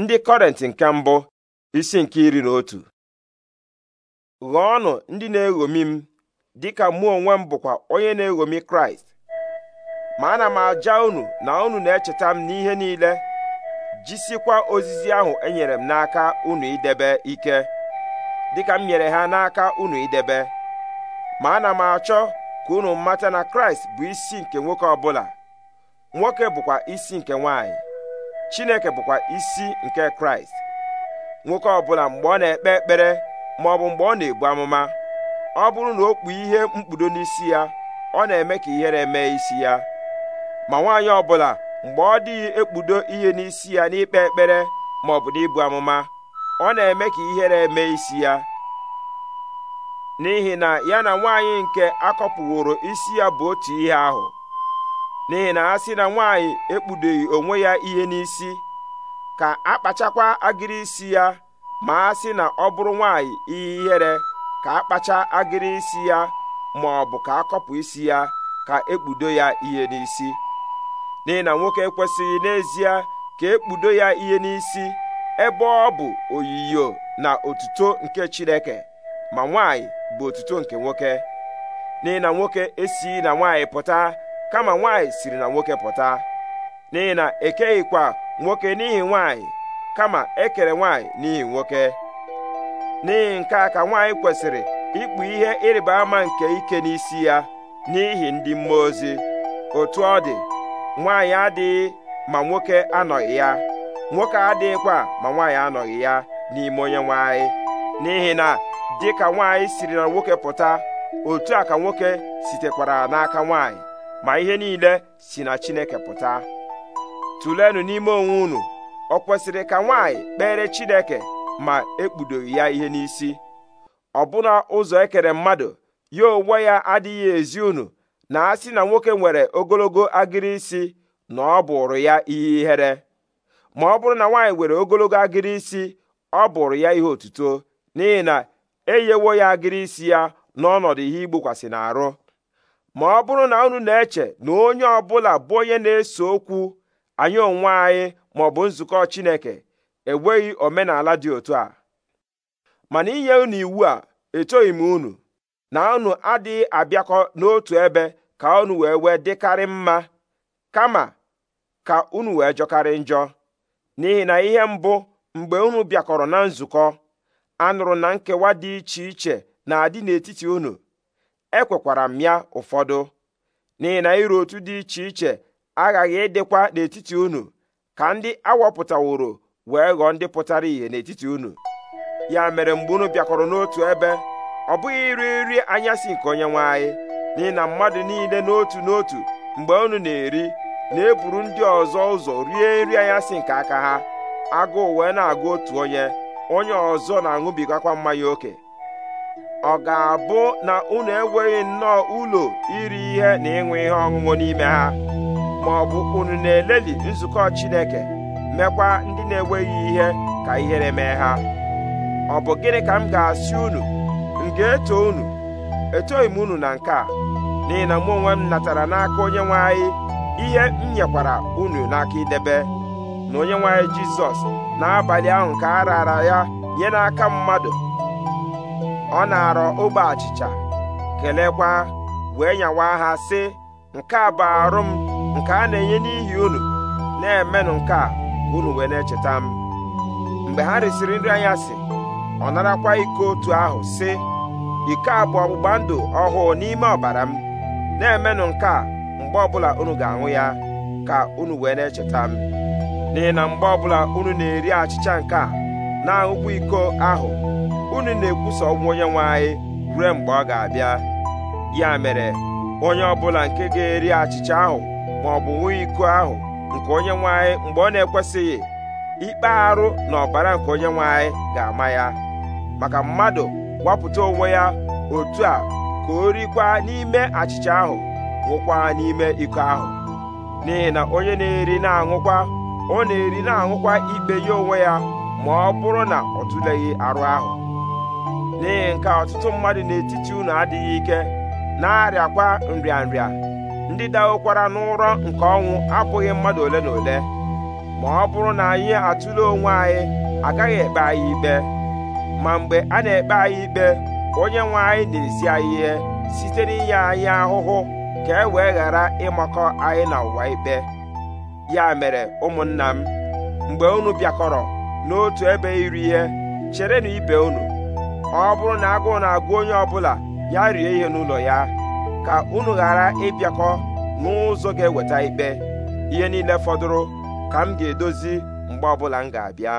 ndị kọrentị nke mbụ isi nke iri na otu ọnụ ndị na-eghomi m dịka mụ onwe m bụkwa onye na-eghomi kraịst ma ana m aja ụnụ na ụnụ na-echeta m n'ihe niile jisikwa ozizi ahụ enyere m n'aka unu idebe ike dịka m nyere ha n'aka ụnụ idebe ma ana m achọ ka unu mata na kraịst bụ isi nke nwoke ọbụla nwoke bụkwa isi nke nwanyị chineke bụkwa isi nke kraịst nwoke ọbụla mgbe ọ na-ekpe ekpere ma ọ bụ mgbe ọ na-ebu amụma ọ bụrụ na o kpuo ihe mkpudo n'isi ya ọ na-eme ka ihere mee isi ya ma nwaanyị ọbụla mgbe ọ dịghị ekpudo ihe n'isi ya n'ikpe ekpere ma ọ bụ n'ibu amụma ọ na-eme ka ihere mee isi ya n'ihi na ya na nwaanyị nke akọpụworo isi ya bụ otu ihe ahụ n'ihi na ha sị na nwaanyị ekpudoghị onwe ya ihe n'isi ka akpachakwa agịrị isi ya ma a sị na ọ bụrụ nwaanyị ihe ihere ka akpacha agịrị isi ya ma ọ bụ ka akọpụ isi ya ka ekpudo ya ihe n'isi n'ihi na nwoke ekwesịghị n'ezie ka ekpudo ya ihe n'isi ebe ọ bụ oyiyo na otuto nke Chineke ma nwaanyị bụ otuto nke nwoke n'ihi na nwoke esighị na nwaanyị pụta kama nwanyị siri na nwoke pụta n'ihi na ekeghịkwa nwoke n'ihi nwanyị kama ekere nwanyị n'ihi nwoke n'ihi nke a ka nwaanyị kwesịrị ikpu ihe ịrịba ama nke ike n'isi ya n'ihi ndị mmụọ ozi otu ọ dị nwanyị adịghị ma nwoke anọghị ya nwoke adịghịkwa ma nwanyị anọghị ya n'ime onye nwanyị n'ihi na dịka nwaanyị siri na nwoke pụta otu a ka nwoke sitekwara n'aka nwanyị. ma ihe niile si na Chineke pụta tụlenụ n'ime onwe unu ọ kwesịrị ka nwaanyị kpere Chineke ma ekpudoghị ya ihe n'isi ọ ọbụna ụzọ ekere mmadụ ya onwe ya adịghị ezi unu na a sị na nwoke nwere ogologo agịrị isi na ọ bụrụ ya ihe ihere ma ọ bụrụ na nwaanyị nwere ogologo agịrị isi ọ bụrụ ya ihe otuto n'ihi na enyewo ya agịrị isi ya n'ọnọdụ ihe igbokwasị n'arụ ma ọ bụrụ na unu na-eche na onye ọ bụla bụ onye na-ese okwu anyị onwe anyị ma ọ bụ nzukọ Chineke enweghị omenala dị otu a mana inye unu iwu a etoghị m unu na unu adịghị abịakọ n'otu ebe ka unu wee wee dịkarị mma kama ka unu wee jọkarị njọ n'ihi na ihe mbụ mgbe unu bịakọrọ na nzukọ anụrụ na nkewa dị iche iche na-adị n'etiti unu ekwekwara m ya ụfọdụ n'ihi na iru otu dị iche iche aghaghị ịdịkwa n'etiti unu ka ndị awọpụtaworo wee ghọọ ndị pụtara ìhè n'etiti unu ya mere mgbe unu bịakọrọ n'otu ebe ọ bụghị iri nri anyasị nke onye nwe anyị n'ihi na mmadụ niile n'otu n'otu mgbe unu na-eri na-eburu ndị ọzọ ụzọ rie nri anyasị nke aka ha agụụ wee na-agụ otu onye onye ọzọ na-aṅụbigakwa mmanya oke ọ ga-abụ na unu enweghị nnọọ ụlọ iri ihe na ịṅụ ihe ọṅụṅụ n'ime ha ma ọ bụ unu na-eleli nzukọ Chineke mekwa ndị na-enweghị ihe ka ihere mee ha ọ bụ gịnị ka m ga-asị unu m ga-eto unu etoghị m unu na nke a n'ihi na mụ onwe m natara n'aka onye anyị ihe m nyekwara unu n'aka idebe na onye nwanyị anyị Jizọs n'abalị ahụ ka a raara ya nye n'aka mmadụ ọ na-arọ ogbe achịcha kelekwa wee nyawa ha sị nke a bụ arụ m nke a na-enye n'ihi unu na-emenụ nke a unu wee na-echeta m mgbe ha risịrị nri anya sị ọ narakwa iko otu ahụ sị iko a bụ ọgbụgba ndụ ọhụụ n'ime ọbara m na-emenụ nke a mgbe ọbụla unu ga-aṅụ ya ka unu wee na-echeta m n'ihi na mgbe ọbụla unu na-eri achịcha nke a na-aṅụkwa iko ahụ unu na-ekwusa ọgwụ onye nwanyị anyị ruo mgbe ọ ga-abịa ya mere onye ọbụla nke ga-eri achịcha ahụ ma ọ bụ nwunye iko ahụ nke onye nwanyị anyị mgbe ọ na-ekwesịghị ikpe arụ na ọbara nke onye nwanyị anyị ga-ama ya maka mmadụ gwapụta onwe ya otu a ka o rikwa n'ime achịcha ahụ ṅụkwa n'ime iko ahụ n'ihi na onye na-eri na-aṅụkwa ọ na-eri na-aṅụkwa ikpe ya onwe ya ma ọ bụrụ na ọ tụleghị arụ ahụ n'ihi nke ọtụtụ mmadụ n'etiti unu adịghị ike na-arịakwa nrịanrịa ndị dawokwara n'ụrọ nke ọnwụ abụghị mmadụ ole na ole ma ọ bụrụ na anyị atụle onwe anyị agaghị ekpe anyị ikpe ma mgbe a na-ekpe anyị ikpe onye nwe anyị na-esi anyị ihe site n'inye anyị ahụhụ ka e wee ghara ịmakọ anyị na ụwa ikpe ya mere ụmụnna m mgbe unu bịakọrọ n'otu ebe iri ihe cherenụ ibe unu ọ bụrụ na agụụ na-agụ onye ọbụla ya rie ihe n'ụlọ ya ka unu ghara ịbịakọ n'ụzọ ga-eweta ikpe ihe niile fọdụrụ ka m ga-edozi mgbe ọbụla m ga-abịa